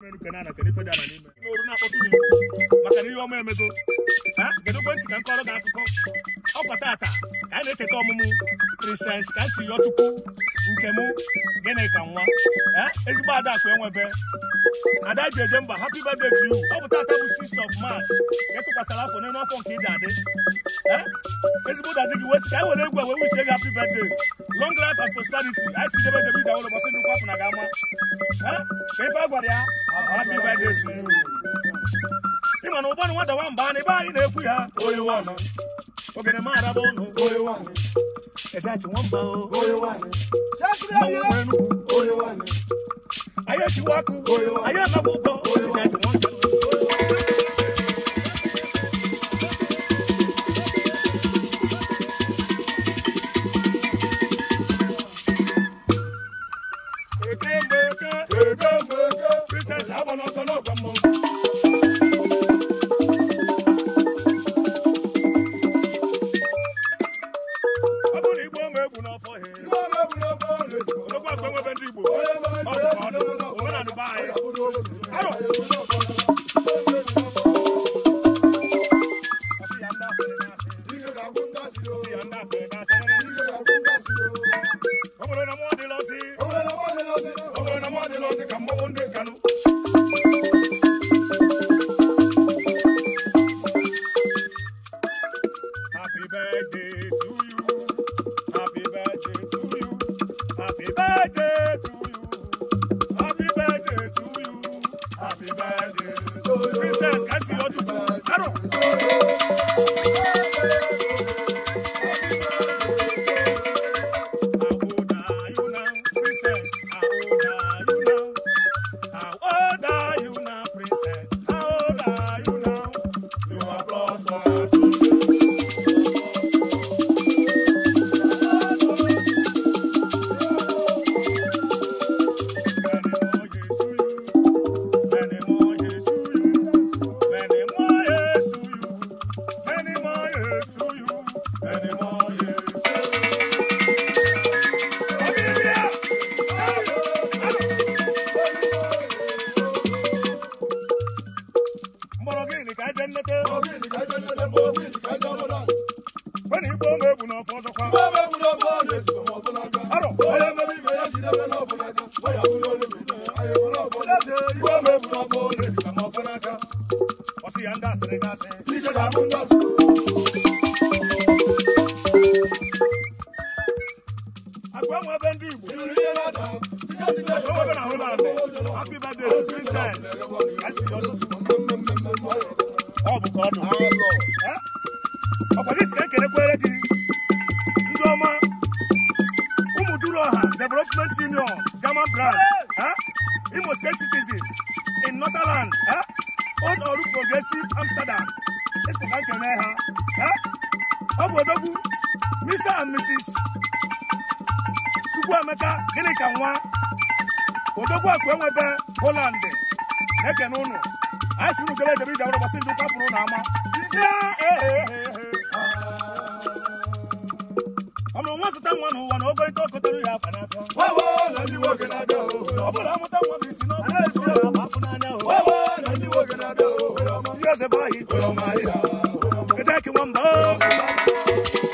n'oru na-akpọtụ maka na ihe ọma emego kedu ekwentị ka m kọrọ gị akụkọ ọkwa tata ka a na-echeta ọmụmụ ka a Princess Kasiyọchukwu nke mụ gịnị ka nwa ezigbo adakụ enwebe ada ji eje mba happy birthday to you ọ bụ tata bụ 6th of March etụkwasara afọ n'elu afọ nke ị ga-adị Eh? ezigbo ụda dị gị wesi ka e were egwu wee uche gị happy birthday long life and prosperity anyị si debe debe ike awụlọ ndị kwapụ na gị ama ka ife a gwara ya happy birthday to you ị ma e oh. na ụgbọ na nwata nwa mba na ebe anyị na-ekwu ya ogene ụnụ oyi nwamba anyị ma akwe nwebe ndị Happy birthday to you. Happy birthday to you. Happy birthday to you. Princess, can I see your two? Happy jennete bobili ka jennete bobili ka jamola bani bo me bu na fo so kwa ti mo fo na ga aro mi me ya ti de me na fo na ga o ya bu lo le me ayo mo na fo le ti bo me bu na fo le ti mo fo na ga o si anda se ti ga da mu nda happy birthday to ọ ọkwado isi ka ekelekwere gị ndị ọma ụmụduru ọha development union german branch imo state citizen in northern old ọrụ progressive amsterdam esoka nkene ha ọ bụ odogwu mr and mrs chukwuemeka gịnị ka nwa odogwu akụ enwebe poland na-ekene ụnụ anyị siri ukele ejebe iji arụ gbasị ndị ụka pụrụ na ama ọmụ nwa zụta nwa n'ụwa na ogo ike okotoro ya akpa n'afọ ọbụla mụta nwa isi n'ọbụ ihe eze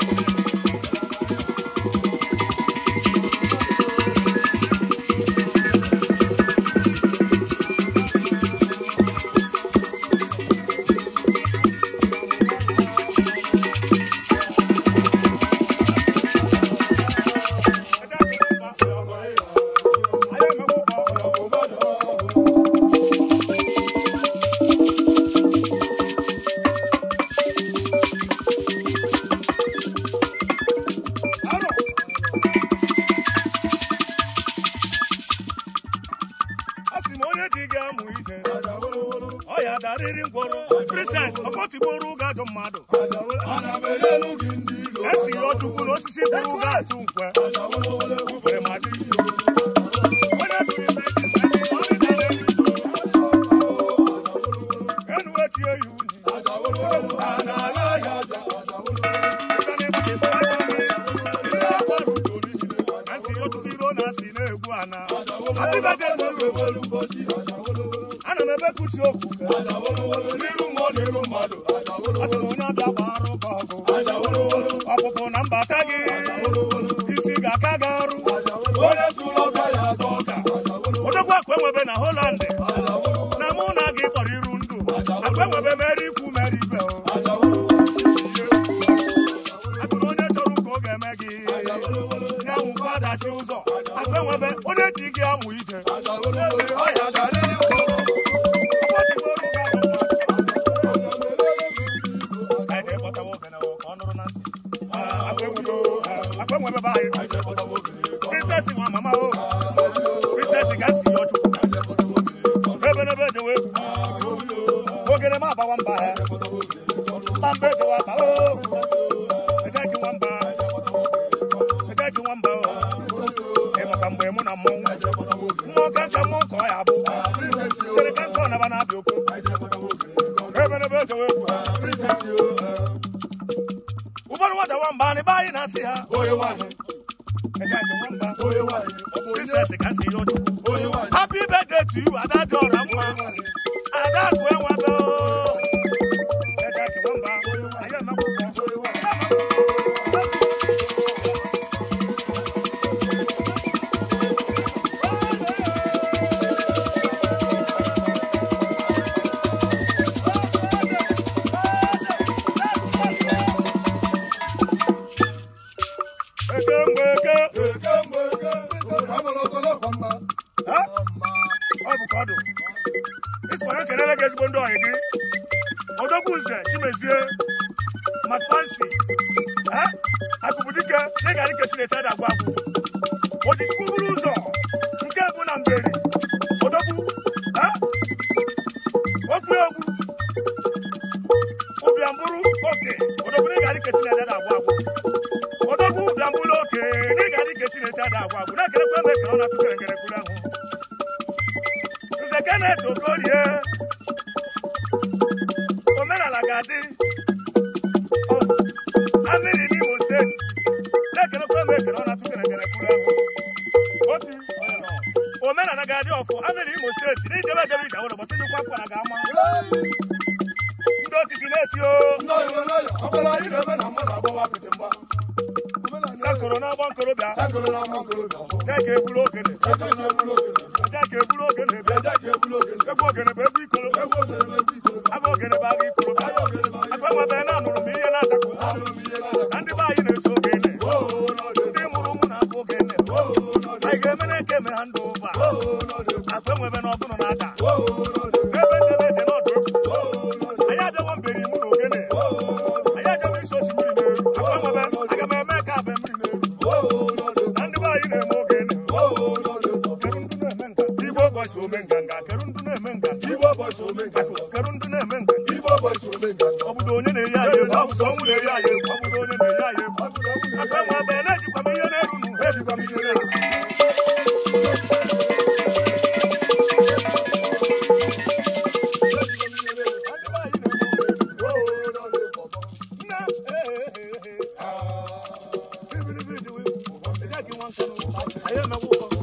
Abụzi m onye dị ga-amụ ije ọ ya darịrị ngwọrọ prises ọkọtigboro ụga ajọ mmadụ esi ọchukwu n'osisi bụrụ ụga atụ nkwe onye jụrụ n'iru mmụọ n'iru mmadụ asị na onye ọbịa gbara ụka ọgụ ọpụpụ na mbata gị isi ga-aka gị ọrụ odogwu akụ enwebe na Holland na mụ na gị kpọrọ iru ndụ akụ enwebe mere ikwu mere ibe atụrụ onye chọrọ ụka ọ ga-eme gị ya nwụkwa adachi ụzọ akụ onye ji gị amụ ije fún princess wọn màmá o princess gàásì yọjú rẹbẹrẹbẹ jẹwé ògèrè Happy birthday to you, Adadora. Adadora. ka ọ kelele ezigbo ndị ọyị gị odogwu nze chimezie ị na agwụ ojichukwu bụrụ ụzọ nke bụ na mberi odogwu okwu ogwu ụbịamburu, oke na-ekerekwa togorie omenala ga-adị oh, amịrị n'imo steeti na-ekelekwa m ekele ọ na-atụ kerekere kwuru ahụ omenala ga-adị ọfụ amịrị imo steeti na ijebe ejebe ije ụlọ gbasị njikwa kwara ga-ama ndị otiti na-eti o Sakoro na agba nkorobịa jeka eburu ogene egwu ogene bụ egwu ikoro agụ ogene bụ agụ ikoro aka nwebe na amụrụ m ihe na-adakọ na ndị be anyị na-eto ogene ndị mụrụ ụmụ na-abụ ogene anyị ga-eme na eke ha ndụ ụba na ọbụrụ na-ada n'ebe ndị na-eje n'ọdụ anyị mberi mụ na ogene wulere aye kwabudo ne ne aye kwabudo ne agba ma be na ji kwame yele runu I am a woman.